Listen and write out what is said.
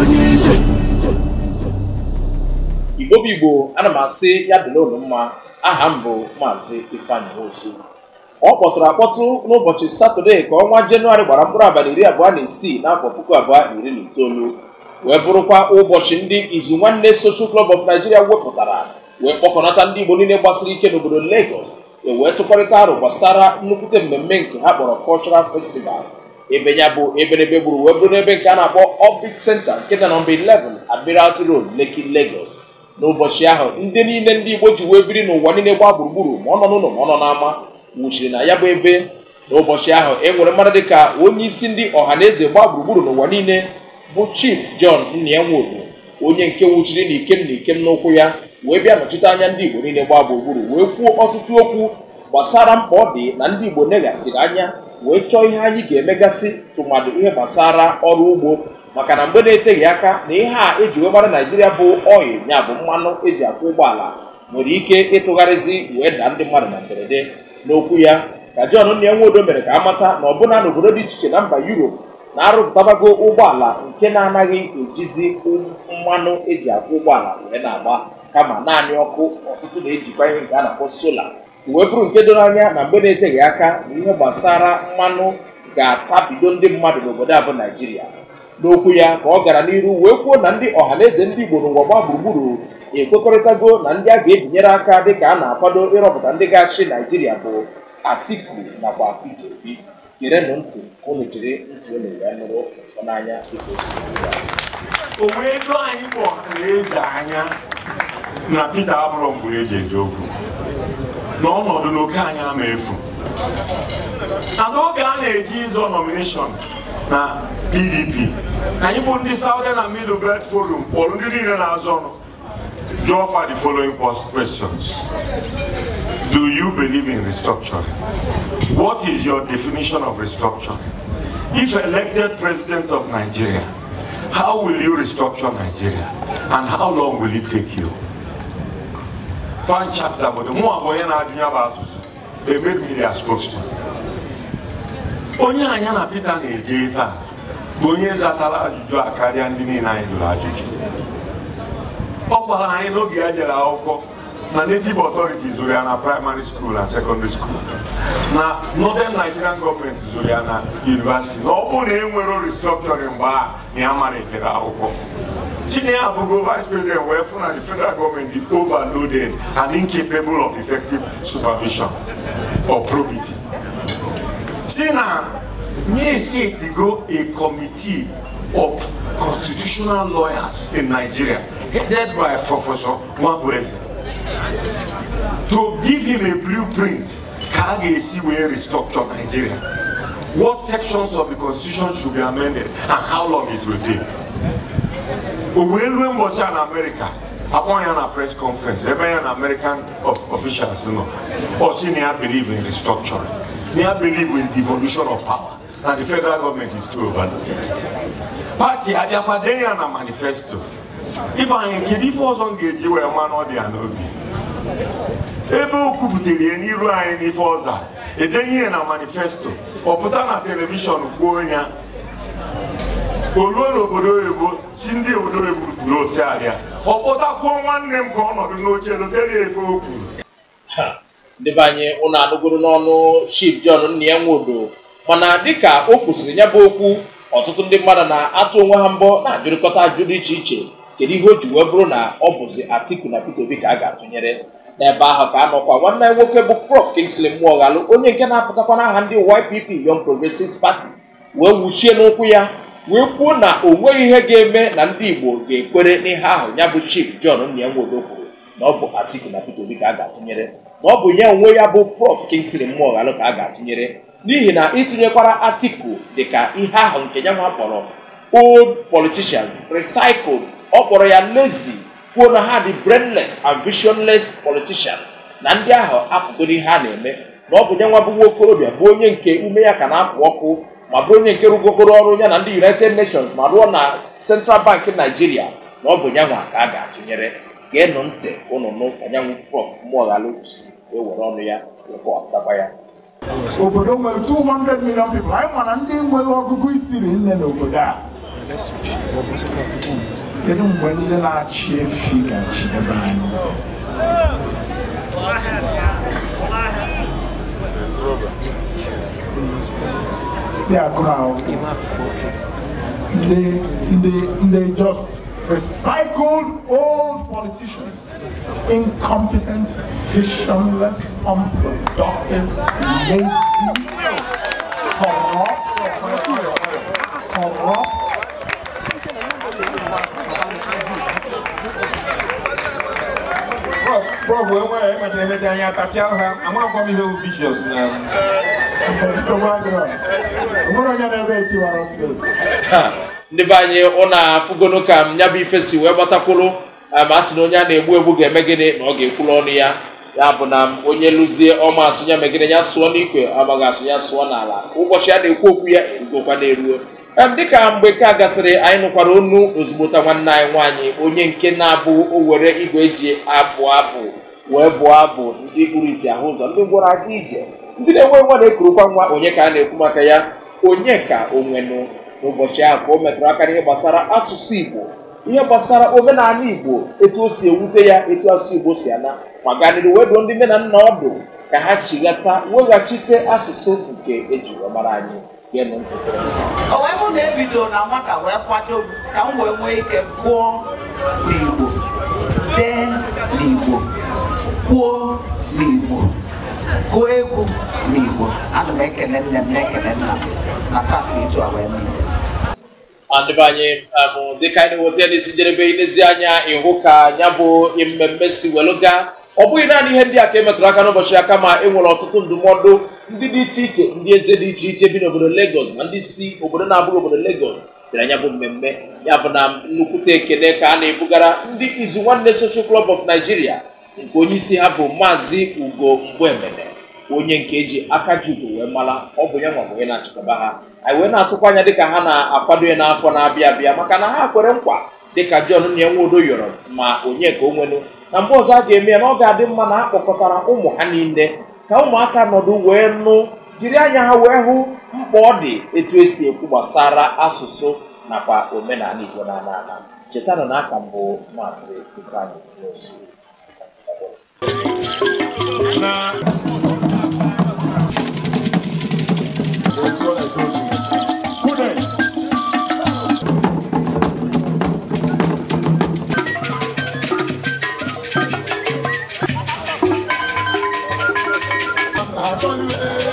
igbo bụ igbo ana m asị ya dịla mma aha m bụ maazị ifeanyị ozu ọ kpọtụrụ akpọtụ n'ụbọchị satọde ka ọnwa jenụwarị gbara mkpụrụ abalị iri abụọ na isii n'afọ puku abụọ na iri na itoolu wee bụrụkwa ụbọchị ndị izu nwanne Social klọb of wepụtara wee kpọkọnata ndị igbo niile gbasiri ike n'obodo Lagos ewee tụkọrịta arụ gbasara nnukwute mmemme nke ha kpọrọ Cultural Festival ebe ya bụ eberebe gburu wee bụrụ n'ebe nke a na-akpọ Orbit Center nke dị na mba 11 Admiralty Road Lekki n'ụbọchị ahụ ndị niile ndị Igbo ji wee biri n'ụwa niile gbaa gburugburu ma ọ nọ n'ụlọ ma ọ nọ n'ama nwụchiri na ya bụ ebe n'ụbọchị ahụ e nwere mmadụ ka onye isi ndị ọha na eze gbaa gburugburu n'ụwa niile bụ Chief John Nnienwodu onye nke nwụchiri na ikem na ikem n'ụkwụ ya wee bịa nọchite anya ndị Igbo niile gbaa gburugburu wee kwuo ọtụtụ okwu gbasara mkpa ọ dị na ndị Igbo neghasịrị anya wee chọọ ihe anyị ga-emegasị tụmadụ ihe gbasara ọrụ ugbo maka na mgbe na-eteghị aka na ihe a eji wee mara naijiria bụ oyi ya bụ mmanụ eji akwụ ụgbọala nwere ike ịtụgharịzi wee daa ndị mmadụ na mberede n'okwu ya ka jọn John Nwodo mere ka amata na ọbụna n'obodo dị iche iche na mba yuropu na-arụpụtabago ụgbọala nke na-anaghị ejizi um mmanụ eji akwụ ụgbọala wee na-agba kama naanị ọkụ ọtụtụ na-ejikwa ihe nke a na-akpọ sola wee bụrụ nke doro anya na mgbe na-eteghị aka na ihe gbasara mmanụ ga-atabido ndị mmadụ n'obodo a bụ naijiria n'okwu ya ka ọ gara n'iru wee kwuo na ndị ọhaneze ndị igbo n'ụwa gbaa gburugburu ekwekọrịtago na ndị a ga-ebinyere aka dịka a na-akwado ịrọpụta ndị ga-achị naijiria bụ atiku nakwa peter obi gerenụ ntị unu jiri ntị unu wee nụrụ n'anya dịka o wee anyị bụ ọhaneze anya na peter abụrụ mgbe eji eji okwu na ọnọdụ na oke anyị ama efu na n'oge a na-eji ịzọ nomination na pdp anyị bụ ndị southern and middle belt forum kpọrọ ndị niile na-azọ ọnụ jụọ fa the following questions do you believe in restructuring what is your definition of restructuring if elected president of nigeria how will you restructure nigeria and how long will it take you franchise obodo mụ bụ onye na-ajụ ya bụ asụsụ emebiri ya spokesman onye anya na Peter na-eje ife a bụ onye zatara ajụjụ a karịa ndị niile anyị jụrụ ajụjụ ọ gwara anyị n'oge ya jere akwụkwọ na native authorities zụrụ ya na primary school and secondary school na northern nigerian Government zụrụ ya na university na ọ bụrụ na e nwere restructuring mgbe a na ya mara akwụkwọ Senior Abugo Vice President were from the federal government the overloaded and incapable of effective supervision or probity. See now, they say go a committee of constitutional lawyers in Nigeria, headed by Professor Mwabweze, to give him a blueprint ka we ga-esi restructure Nigeria. What sections of the constitution should be amended and how long it will take. o wee rue mbọchị a na amerịka akpọ ya na press conference ebe ya na american officials nọ ọ sị na ya believe in restructuring na ya believe in devolution of power na the federal government is too overloaded pati abịakwa ya na manifesto ịba anyị kedu ife ọzọ m ga-eji wee ma na ọ dị ya n'obi ebe o kwupụtara ya n'iru anyị n'ife ọza edenye ya na manifesto ọ pụta na telivishọn kwuo ya o ruo n'obodo oyibo si ndị obodo oyibo buru abịa ọ kpọtakwuo nwanne m ka ọ nọdụ n'oche lotere efe okwu ndebe anyị ụnụ anụgoro n'ọnụ jon nna ya Nwodo mana dịka o kwụsịrị ya bụ okwu ọtụtụ ndị mmadụ na-atụ onwe ha mbọ na-ajụrịkọta ajụ dị iche iche kedu ihe o ji wee bụrụ na ọ bụzi Atiku na Peter Obi ka a ga-atụnyere n'ebe ahụ ka nọkwa nwanne nwoke bụ Prof Kingsley galụ onye nke na-apụtakwa n'aha ndị YPP Young Progressives Party wee wuchie n'ụkwụ ya wee kwuo na o nweghị ihe ga-eme na ndị Igbo ga-ekwere n'ihe ahụ ya bụ Chief John Nwodo kwuru na ọ bụ Atiku na Peter Obi ka a ga-atụnyere na ọ bụ nye onwe ya bụ Prof Kingsley Moghalu ka a ga-atụnyere n'ihi na itinyekwara dị dịka ihe ahụ nke ya nwa kpọrọ old politicians recycled ọ kpọrọ ya lazy kwuo na ha dị brainless and visionless politician na ndị ahụ apụgo ihe a na-eme na ọ bụ ya nwa bụ nwa okorobịa bụ onye nke ume ya ka na-apụ ọkụ ma bụrụ onye nke rụgokoro ọrụ ya na ndị united nations ma rụọ na central bank naijiria na ọ bụ nyanwa ka a ga-atụnyere geenụ ntị ụnụ nụ anyanwụ nyanwụ prof mụọghalụ si ewere ọnụ ya rekọtaba ya obodo nwere 200 million people anyị ma na ndị nwere ọgụgụ isiri nne n'obodo a kedu mgbe ndị na-achị efi ga-achị ebe anyị They are ahụ they, they, they just recycled old politicians, incompetent, visionless, unproductive, lazy, corrupt, corrupt. Prof, prof, enweghị emechara emechara anya tapịa ha, amaghịkwa m ihe bụ vicious na ndị be anyị ụna afụgono ka m ya bụ ife wee gbatakwụrụ eh, ma a sị na onye a na-egbu egbu ga-eme gịnị na ọ ga-ekwuru ọnụ ya ya bụ na onye lụzie ọma asụnya megide ya sụọ n'ikwe amaghị asụnya sụọ n'ala ụbọchị a na-ekwu okwu ya erugokwa n'eruo. Eh, dịka mgbe ka gasịrị anyị nụkwara onu ozigbota nwanne anyị nwaanyị onye nke na-abụ o were igwe eji abụ abụ wee bụọ abụ ndị kpuru isi ahụ ụzọ ndị gwara aka ije ndị na-enwe nwa na-ekurukwa nwa onye ka a na-ekwu maka ya onye ka onwenụ n'ụbọchị ahụ ka o metụrụ aka n'ihe gbasara asụsụ Igbo ihe gbasara omenala Igbo etu o si ewute ya etu asụsụ Igbo si ana ma ganịrị weduo ndị nne na nna ọdụ ka ha chighata weghachite asụsụ nke eji wee anyị onwe na-ebido na nwata wee kwado m ka m wee nwee ike gụọ n'Igbo dee n'Igbo kwuo n'Igbo kụọ egwu n'Igbo ana m ekele nne m na-ekele nna m na fasi ịtụ a wee adịbanye m um, dịka anyị na-enweta n'isi njedebe ilezianya ịhụ ka ya bụ mmemme si weluga ọ bụghị naanị ihe ndị a ka e metụrụ aka n'ụbọchị ya kama e nwere ọtụtụ ndụmọdụ ndị dị iche iche ndị eze dị iche iche bi n'obodo Lagos na ndị si obodo na-abụghị obodo Lagos bịara ya bụ mmemme ya bụ na nnukwute ekele ka a na-ebugara ndị izu nwanne Social Club of Nigeria nke onye isi ha bụ maazị Ugo Mgbemene onye nke eji aka jubu wee mara ọ bụ ya nwa bụ na-achịkọba ha anyị wee na-atụkwa anya dịka ha na-akwado ya n'afọ na-abịa abịa maka na ha kwere nkwa dịka jọn na enwe odo yọrọ ma onye ka o nwenu na mgbe ọzọ a ga-eme ya na ọ ga-adị mma na akpọkọtara ụmụ ha niile ka ụmụaka nọdụ wee nụ jiri anya ha wee hụ mkpa ọ dị etu esi ekwu gbasara asụsụ nakwa omenala Igbo na ala ala chetanụ na aka mbụ maazị n'osu. I value it.